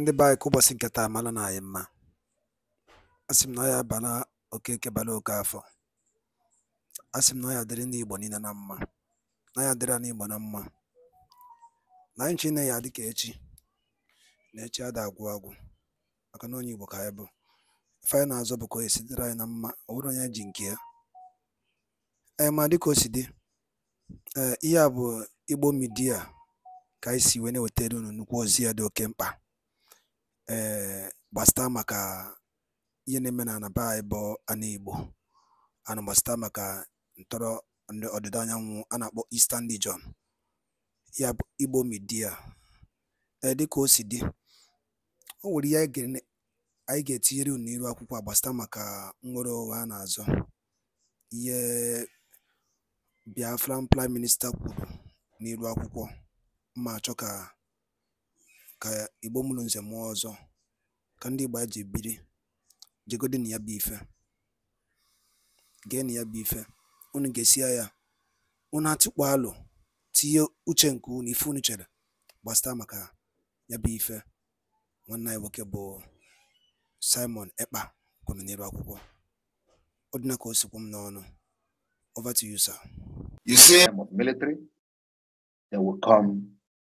ndị be anyị ka ụbọchị nke taa mara na anyị mma a sị m na ya bara okeke bara oke afọ a sị m na ya dịrị ndị Igbo niile na mma na ya dịrị na Igbo na mma na anyị chine ya dịka echi na echi ada agwụ agwụ maka na onye Igbo ka anyị bụ ife anyị na-azọ bụ ka o sitere anyị na mma ọ bụrụ onye ji nke ya ee eh, ma dịka o si dị ee eh, ihe a bụ Igbo midia ka anyị si wee na-ewetara unu nnukwu ozi ya dị oke mkpa ee eh, gbasịta ihe na-eme na anaba anyị bụ ana Igbo ana ntọrọ ndị ọdịda anyanwụ a na-akpọ Eastern Region ya bụ Igbo Media ee eh, dịka o si dị o nwere ihe anyị ga-etinyere unu n'iru akwụkwọ a maka nwere nnwere onwe a na-azọ ihe Biafran Prime minista kwuru n'iru akwụkwọ ma chọka. ka Ìgbo mụrụ Nze mụọ Ọzọ ka ndị Ìgbo ji biri jegodi na ya bụ ife na ya bụ ife unu esi ya unu atụkpọ alụ tinye uche nke unu ife unu chere gbasata maka ya bụ ife nwanne anyị nwoke bụ Simon Ekpa kwuru n'elu akwụkwọ ọ dị ka o sikwu m n'ọnụ over to you sir you see military they will come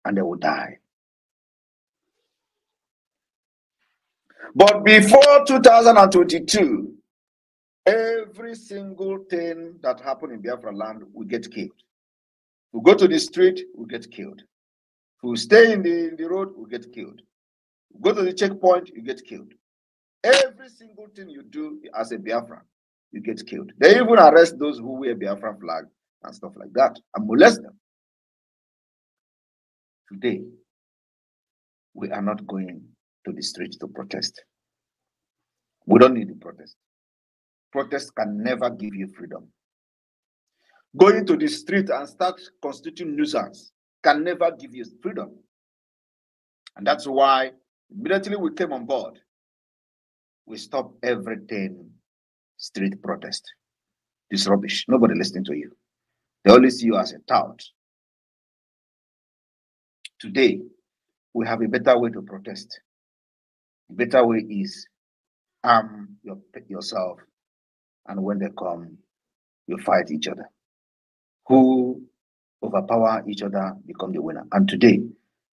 and they will die But before 2022, every single thing that happened in Biafra land will get killed. We go to the street, we get killed. Who stay in the, in the road, we get killed. We go to the checkpoint, you get killed. Every single thing you do as a Biafran, you get killed. They even arrest those who wear Biafran flag and stuff like that and molest them. Today, we are not going to the streets to protest. We don't need to protest. Protest can never give you freedom. Going to the street and start constituting nuisance can never give you freedom. And that's why immediately we came on board, we stopped everything street protest. This rubbish. Nobody listening to you. They only see you as a tout. Today, we have a better way to protest better way is arm your, yourself, and when they come, you fight each other. Who overpower each other become the winner. And today,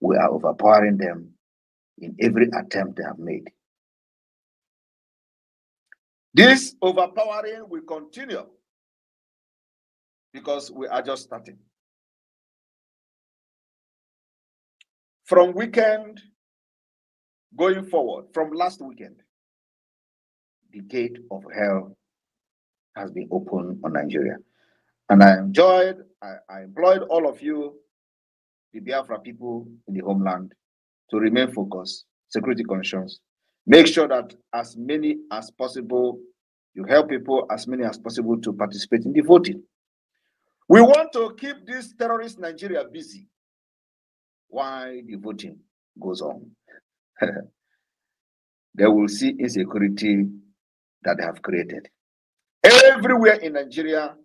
we are overpowering them in every attempt they have made. This overpowering will continue because we are just starting. From weekend going forward from last weekend, the gate of hell has been opened on Nigeria. And I enjoyed, I, I employed all of you, the Biafra people in the homeland, to remain focused, security conscious. Make sure that as many as possible, you help people as many as possible to participate in the voting. We want to keep this terrorist Nigeria busy while the voting goes on. they will see insecurity that they have created. Everywhere in Nigeria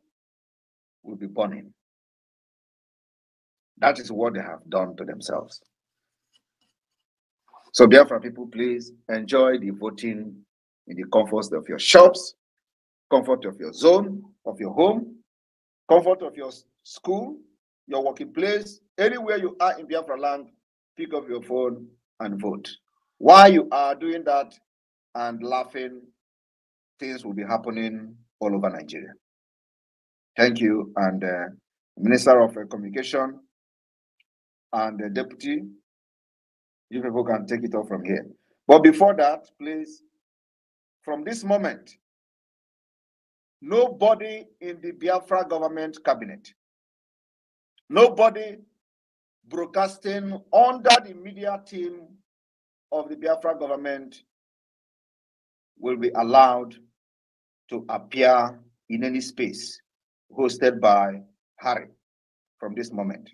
will be burning. That is what they have done to themselves. So, Biafra people, please enjoy the voting in the comforts of your shops, comfort of your zone, of your home, comfort of your school, your working place, anywhere you are in Biafra land, pick up your phone and vote. While you are doing that and laughing, things will be happening all over Nigeria. Thank you. And uh, Minister of uh, Communication and the uh, Deputy, you people can take it off from here. But before that, please, from this moment, nobody in the Biafra government cabinet, nobody broadcasting under the media team of the Biafra government will be allowed to appear in any space hosted by Harry from this moment.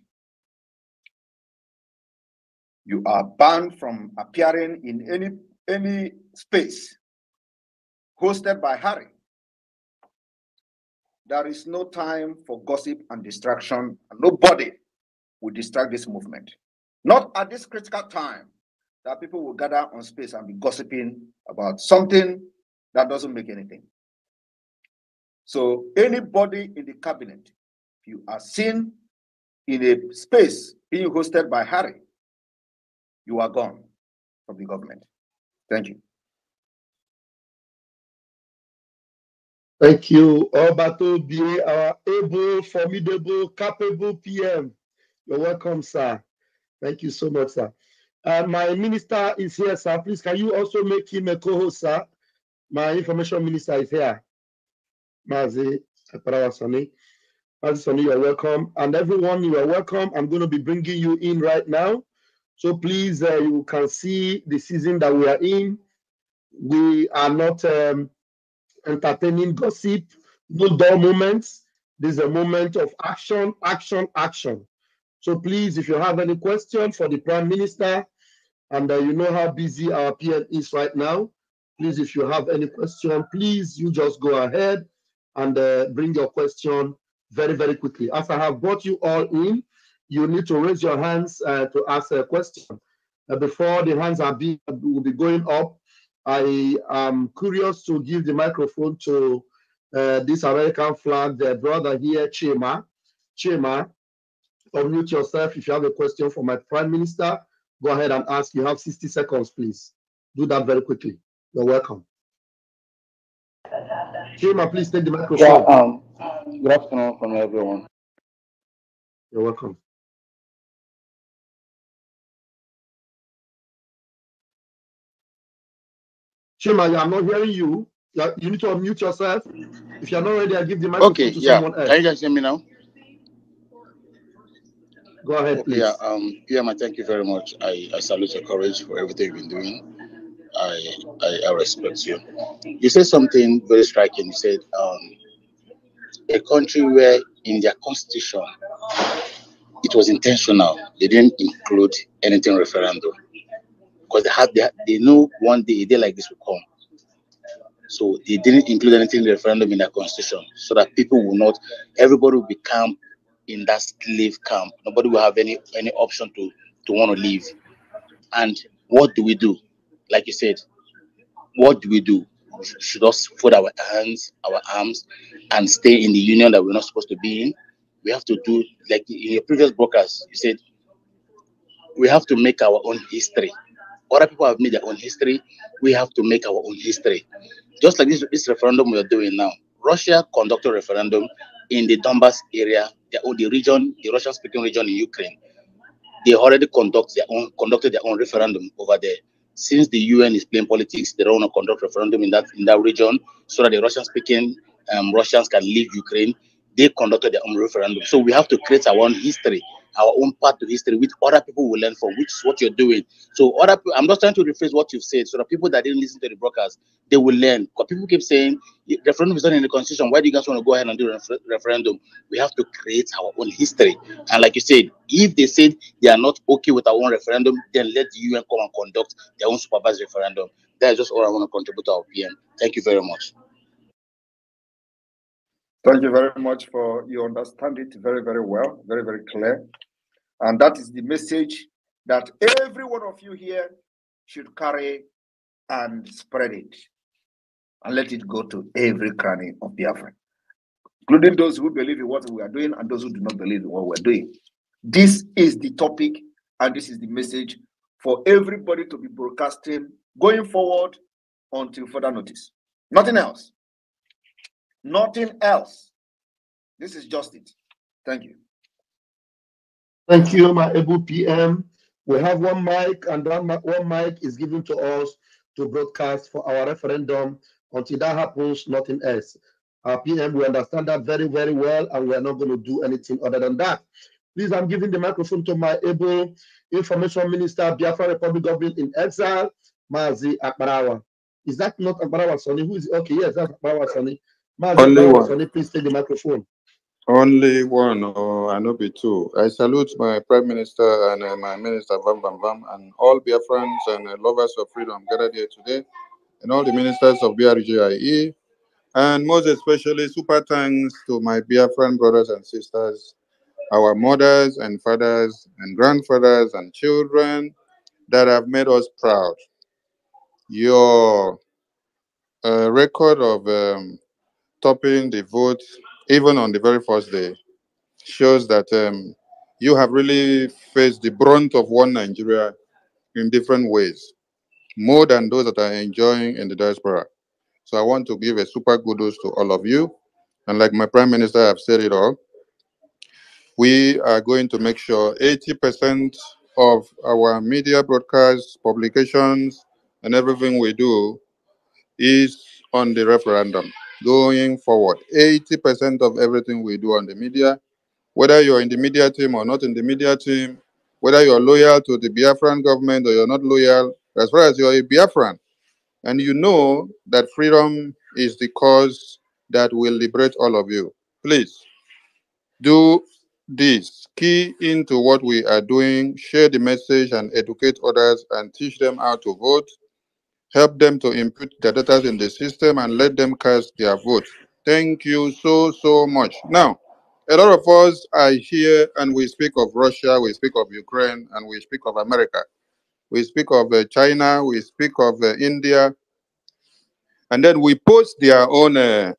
You are banned from appearing in any, any space hosted by Harry. There is no time for gossip and distraction. Nobody will distract this movement. Not at this critical time that people will gather on space and be gossiping about something that doesn't make anything. So anybody in the cabinet, if you are seen in a space being hosted by Harry, you are gone from the government. Thank you. Thank you, Obato Bire, our able, formidable, capable PM. You're welcome, sir. Thank you so much, sir. Uh, my minister is here, sir. Please, can you also make him a co-host, sir? My information minister is here. Mazi Aparawasani. Mazi Sani, you're welcome. And everyone, you are welcome. I'm going to be bringing you in right now. So please, uh, you can see the season that we are in. We are not um, entertaining gossip, no dull moments. This is a moment of action, action, action. So please, if you have any question for the Prime Minister, and uh, you know how busy our PM is right now, please, if you have any question, please, you just go ahead and uh, bring your question very, very quickly. As I have brought you all in, you need to raise your hands uh, to ask a question. Uh, before the hands are be will be going up, I am curious to give the microphone to uh, this American flag, The brother here, Chema. Chema, unmute yourself. If you have a question for my prime minister, go ahead and ask. You have 60 seconds, please. Do that very quickly. You're welcome. Chima, please take the microphone. Yeah, um, good afternoon from everyone. You're welcome. Chima, I'm not hearing you. You need to unmute yourself. If you're not ready, I give the microphone okay, to yeah. someone else. Can you guys hear me now? Go ahead, please. Yeah, um, yeah, my thank you very much. I, I salute your courage for everything you've been doing. I, I, I respect you. You said something very striking. You said um, a country where in their constitution it was intentional. They didn't include anything referendum because they had they, had, they know one day a day like this will come. So they didn't include anything referendum in their constitution so that people will not everybody will become in that slave camp. Nobody will have any any option to to want to leave. And what do we do? Like you said, what do we do? should us fold our hands, our arms, and stay in the union that we're not supposed to be in? We have to do like in your previous broadcast, you said we have to make our own history. Other people have made their own history. We have to make our own history. Just like this, this referendum we are doing now. Russia conducted a referendum in the Donbass area, the, the region, the Russian-speaking region in Ukraine, they already conduct their own conducted their own referendum over there. Since the UN is playing politics, they don't want to conduct referendum in that in that region so that the Russian-speaking um, Russians can leave Ukraine. They conducted their own referendum. So we have to create our own history our own path to history, which other people will learn from, which is what you're doing. So other, I'm just trying to rephrase what you've said, so the people that didn't listen to the broadcast, they will learn. Because people keep saying referendum is not in the constitution. Why do you guys want to go ahead and do refer- referendum? We have to create our own history. And like you said, if they said they are not okay with our own referendum, then let the UN come and conduct their own supervised referendum. That is just all I want to contribute to our PM. Thank you very much. Thank you very much for you understand it very, very well, very, very clear. And that is the message that every one of you here should carry and spread it and let it go to every cranny of Biafra, including those who believe in what we are doing and those who do not believe in what we're doing. This is the topic and this is the message for everybody to be broadcasting going forward until further notice. Nothing else. Nothing else. This is just it. Thank you. Thank you, my able PM. We have one mic, and that one mic is given to us to broadcast for our referendum. Until that happens, nothing else. Our PM, we understand that very, very well, and we are not going to do anything other than that. Please, I'm giving the microphone to my able Information Minister, Biafra Republic Government in Exile, Mazi Akbarawa. Is that not Akbarawa Sonny? Who is okay? Yes, that's Akbarawa Sonny. Mazi Akbarawa Sonny, please take the microphone. Only one, or oh, I know be two. I salute my Prime Minister and uh, my Minister Bam Bam Bam and all dear friends and uh, lovers of freedom gathered here today, and all the ministers of BRGIE, and most especially super thanks to my friend, brothers and sisters, our mothers and fathers and grandfathers and children that have made us proud. Your uh, record of um, topping the vote even on the very first day, shows that um, you have really faced the brunt of one Nigeria in different ways, more than those that are enjoying in the diaspora. So I want to give a super kudos to all of you. And like my prime minister, I've said it all. We are going to make sure 80% of our media broadcasts, publications, and everything we do is on the referendum going forward. 80% of everything we do on the media, whether you're in the media team or not in the media team, whether you're loyal to the Biafran government or you're not loyal, as far as you're a Biafran, and you know that freedom is the cause that will liberate all of you, please do this. Key into what we are doing, share the message and educate others and teach them how to vote Help them to input the data in the system and let them cast their vote. Thank you so, so much. Now, a lot of us are here and we speak of Russia, we speak of Ukraine, and we speak of America. We speak of uh, China, we speak of uh, India. And then we post their own uh,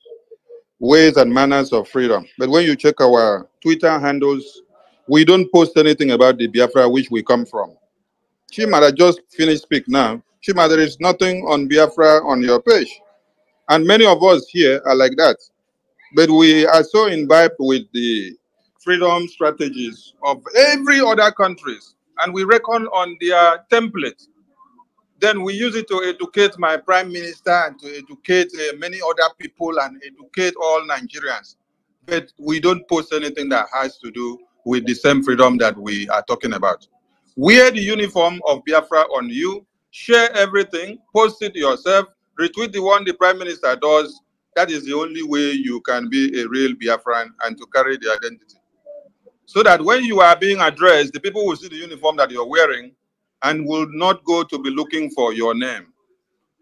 ways and manners of freedom. But when you check our Twitter handles, we don't post anything about the Biafra which we come from. Chimara just finished speak now. Shima, there is nothing on Biafra on your page. And many of us here are like that. But we are so imbibed with the freedom strategies of every other countries, and we reckon on their template. Then we use it to educate my prime minister and to educate uh, many other people and educate all Nigerians. But we don't post anything that has to do with the same freedom that we are talking about. Wear the uniform of Biafra on you Share everything, post it yourself, retweet the one the prime minister does. That is the only way you can be a real Biafran and to carry the identity. So that when you are being addressed, the people will see the uniform that you're wearing and will not go to be looking for your name.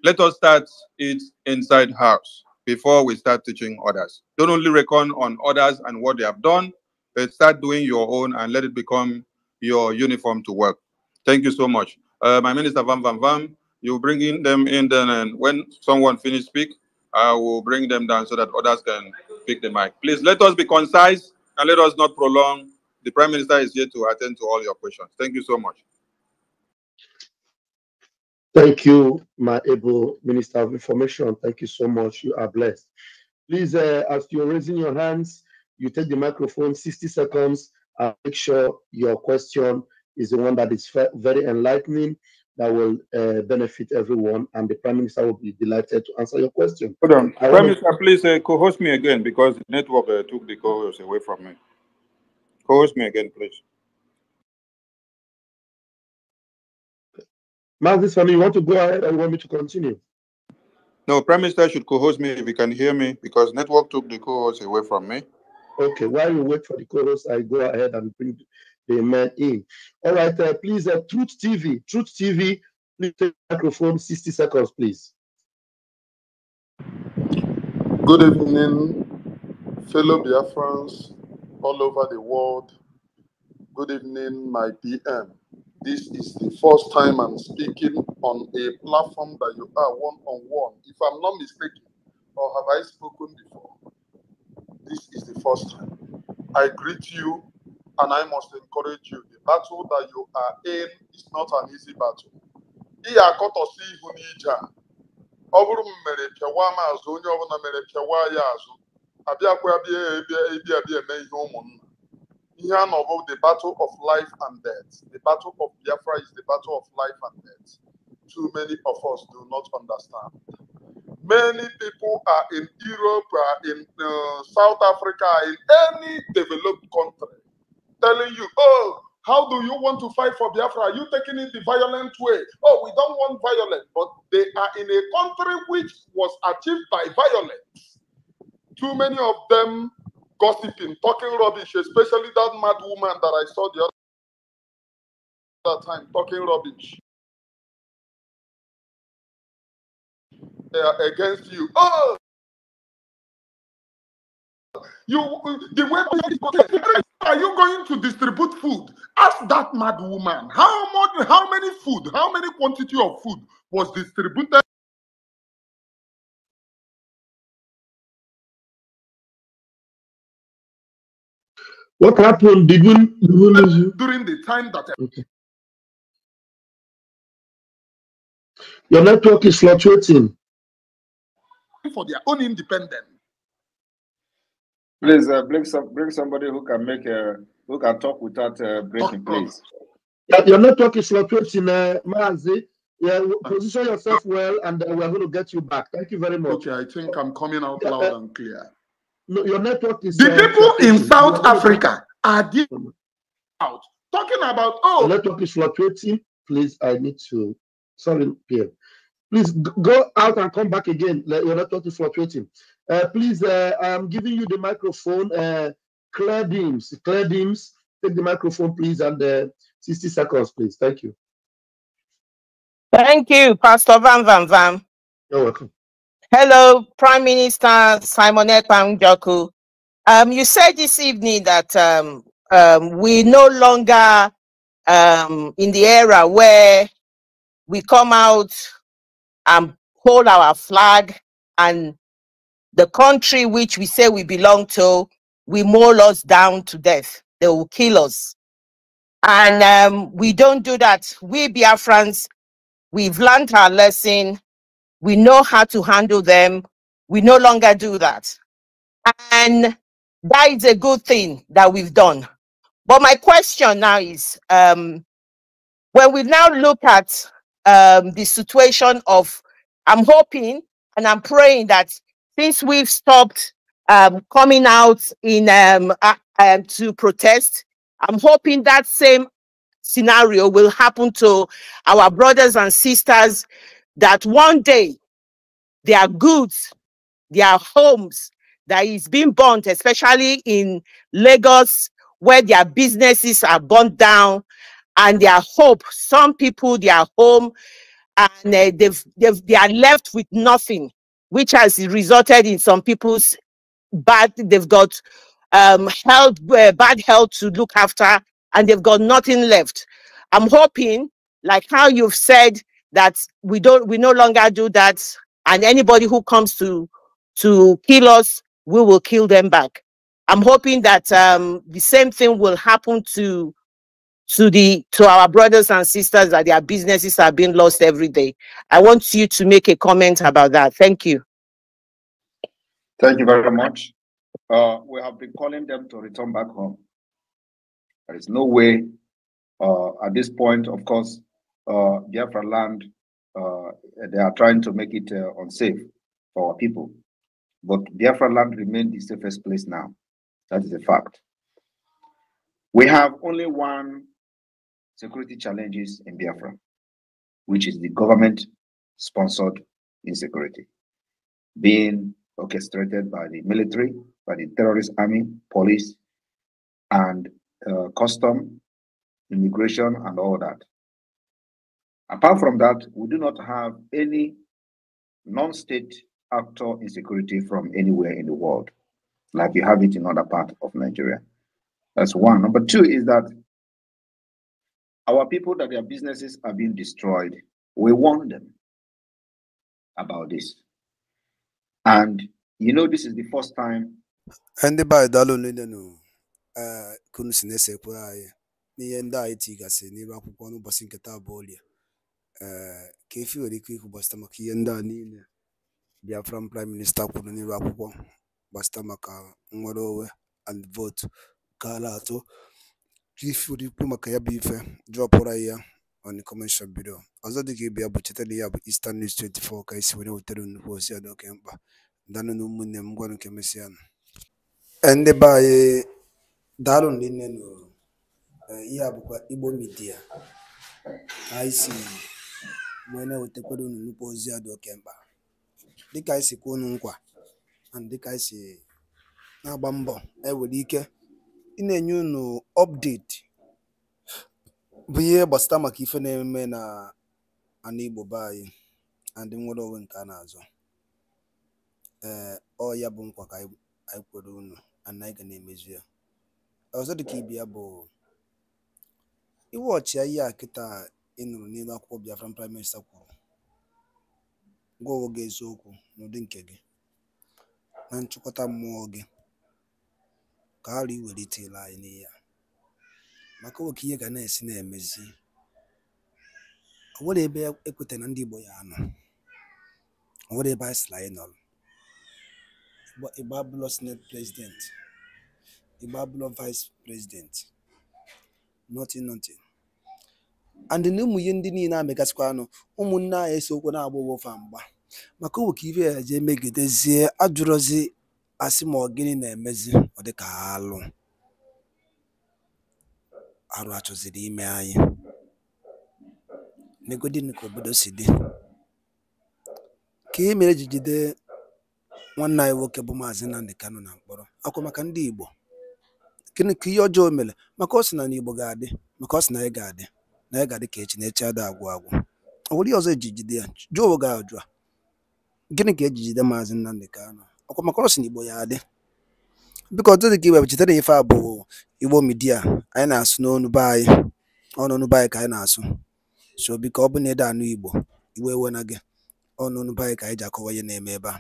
Let us start it inside house before we start teaching others. Don't only reckon on others and what they have done, but start doing your own and let it become your uniform to work. Thank you so much uh, my minister Vam Vam Vam. You bring in them in then, and when someone finishes speak, I will bring them down so that others can pick the mic. Please let us be concise and let us not prolong. The Prime Minister is here to attend to all your questions. Thank you so much. Thank you, my able Minister of Information. Thank you so much. You are blessed. Please, uh, as you're raising your hands, you take the microphone 60 seconds and make sure your question is the one that is very enlightening that will uh, benefit everyone, and the Prime Minister will be delighted to answer your question. Hold on, I Prime to Minister, please uh, co-host me again because the network uh, took the co away from me. Co-host me again, please. Marcus, family, you want to go ahead and want me to continue? No, Prime Minister should co-host me if you can hear me because network took the co-host away from me. Okay, while you wait for the co-host, I go ahead and bring Amen. In. All right, uh, please, uh, Truth TV, Truth TV, please take microphone, 60 seconds, please. Good evening, fellow Biafrans all over the world. Good evening, my PM. This is the first time I'm speaking on a platform that you are one on one. If I'm not mistaken, or have I spoken before? This is the first time. I greet you and I must encourage you. The battle that you are in is not an easy battle. Ihe akọtọsi ihu n'ije a ọ bụrụ mere pịawa m azụ onye ọbụla mere pịawa azụ abịakwa bịa ebia bịa eme ihe ụmụnna ihe a the battle of life and death the battle of Biafra is the battle of life and death too many of us do not understand many people are in Europe are in uh, South Africa in any developed country telling you, oh, how do you want to fight for Biafra? Are you taking it the violent way? Oh, we don't want violence. But they are in a country which was achieved by violence. Too many of them gossiping, talking rubbish, especially that mad woman that I saw the other time talking rubbish. They are against you. Oh, you the way are you going to distribute food? Ask that mad woman how much, how many food, how many quantity of food was distributed What happened? Did we, did we lose you? during the time that Okay. Your network is fluctuating. for their own independence. Please uh, bring some bring somebody who can make a who can talk without uh, breaking, oh, oh. please. Your network is fluctuating, in uh, Mazi. Yeah, position yourself well, and uh, we're going to get you back. Thank you very much. Okay, I think I'm coming out loud uh, and clear. No, your network is. The uh, people in South Africa are deep out talking about oh. network is fluctuating. Please, I need to. Sorry, Pierre. Please go out and come back again. Your network is fluctuating. Uh, please, uh, I'm giving you the microphone. Uh, Claire Deems, Claire Deems, take the microphone, please, and uh, 60 seconds, please. Thank you. Thank you, Pastor Van Van Van. You're welcome. Hello, Prime Minister Simonette Pangjoku. Um, you said this evening that um, um, we no longer um, in the era where we come out and hold our flag and the country which we say we belong to we maul us down to death. They will kill us. And um, we don't do that. We Biafrans, we've learned our lesson. We know how to handle them. We no longer do that. And that is a good thing that we've done. But my question now is, um, when we now look at um, the situation of, I'm hoping and I'm praying that since we've stopped um, coming out in um, uh, to protest, I'm hoping that same scenario will happen to our brothers and sisters that one day their goods, their homes that is being burnt, especially in Lagos, where their businesses are burnt down and their hope, some people, their home, and uh, they've, they've, they are left with nothing which has resulted in some people's bad, they've got um, health, uh, bad health to look after, and they've got nothing left. I'm hoping, like how you've said, that we don't, we no longer do that, and anybody who comes to to kill us, we will kill them back. I'm hoping that um, the same thing will happen to to the to our brothers and sisters that their businesses are being lost every day. I want you to make a comment about that. Thank you. Thank you very much. Uh, we have been calling them to return back home. There is no way uh, at this point, of course, uh, Biafra land, uh, they are trying to make it uh, unsafe for our people. But Biafra land remains the safest place now. That is a fact. We have only one security challenges in Biafra, which is the government sponsored insecurity being orchestrated by the military, by the terrorist army, police, and uh, custom, immigration, and all that. Apart from that, we do not have any non state actor insecurity from anywhere in the world, like you have it in other parts of Nigeria. That's one. Number two is that our people that their businesses are being destroyed, we warn them about this. And you know, this is the first time. Ndị be anyị daalụ nlelenu ndị anyị tigasịrị n'ebe akwụkwọ n'ụbọchị nke taa bụ ka efi nwere ike ikwu gbasịta maka ihe ndị a niile Biafran prime minista kwuru n'ebe akwụkwọ gbasịta maka nnwere onwe and votu gara atọ ikwu maka ya bụ ife ya on the ọzọ dị ka ya bụ cheta ya bụ Eastern News 24 ka isi were wetara nnukwu ozi a oke mkpa danụ m gwanụ e e, ndị be anyị daalụ nne nụrụ e, ihe a bụkwa Igbo Media anyị si wee na-ewetakwara nnukwu ozi a dị nkwa dịka na mbọ ewere ike ị na-enye unu ọpdeti bụ ihe gbasara maka ife na-eme na ana Igbo be anyị ndị nwere onwe nke a na-azọ ee ọ ya bụ nkwa ka anyị kwere unu and anyị ga na-emezu ya ọzọ dịka ibe ya bụ iwe ọchịa ihe a kịta ị nụrụ n'elu akwụkwọ Biafra, prime minista kwuru gwa onwe gị eziokwu n'ụdị nke gị na nchịkọta mmụọ gị ka arụ iwelitela anyị n'ihe maka nwoke ihe ga na-esi na-emezi o nwere ebe ekweta na ndị Igbo ya anọ o nwere ebe anyị sịrị anyị nọrọ Igbo abụlọ senate president Igbo abụlọ vice president nothing nothing and na ụmụ ihe ndị niile amegasịkwa anụ ụmụnne anyị esokwa na-agba owofa mgba maka owe ka ibe ya jee megidezie ajụrụzi asị ma ọ gịnị na-emezi dịka alụ arụ achọziri ime anyị negodini ka obodo si dị ka e mere e ji jide nwanne anyị nwoke bụ maazị Nnamdi Kanu na mkpọrọ akwa maka ndị Igbo gịnị ka ihe ọjọọ mere maka ọ sị na n'Igbo ga-adị maka ọ sị na anyị ga-adị na anyị ga-adị ka echi na echi ada agwụ agwụ ọ nwere ihe ọzọ eji jide ya jụọ oge ajụ a gịnị ka ejijide maazị Nnamdi Kanu akwa maka ọ sị na Igbo ya adị biko Tozzy Iwe bụ chetara ife a bụ Igbo Media anyị na-asụ n'onu be anyị ọnụnụ be anyị ka anyị na-asụ so biko ọ bụ na ede anụ Igbo Igbo ewe na gị ọnụnụ be anyị ka anyị ji akọwa ihe na-eme ebe a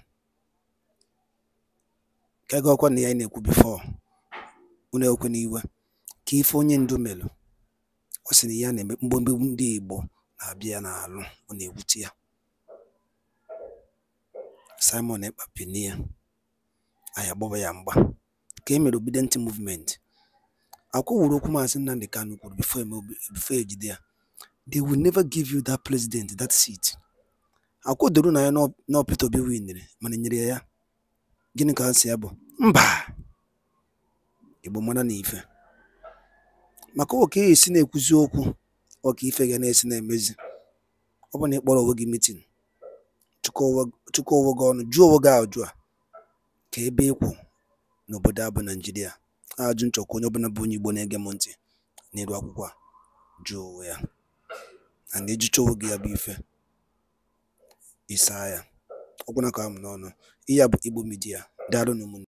ka ego ọkwa na ya anyị na-ekwu bifọ unu n'iwe ka ife onye ndu melụ ọ sị na ya na-eme mgbemgbe ndị Igbo na-abịa ya n'alụ ọ na-ewute ya Simon Ekpa pini ya anyị agbaba ya mgba ka e mere Obidịntị Movement, Akwa wuru okwu Maazị Nnamdi Kanu kwuru e before e jide ya: "They will never give you that president, that seat." Akwa doro na ya na Peter Obi winiri mana enyere nyere ya ya, gịnị ka answer ya bụ? Mba! Igbo mara na ife. Maka ọ ka esi na-ekwuzi okwu ọka ife ga na-esi na-emezi. Ọ bụ na ịkpọrọ onwe gị meeting, chụkọọ onwe gị ọnụ, jụọ onwe gị ajụjụ a ka ebe ịkwụ n'obodo a bụ Ajụ nchọkwa onye ọbụla bụ onye Igbo na-ege m ntị n'elu akwụkwọ a jụọ ya na na-ejicha gị ya bụ ife ịsa ya ọkwụna ka m n'ọnụ ihe a bụ Igbo midia daalụ ụmụnne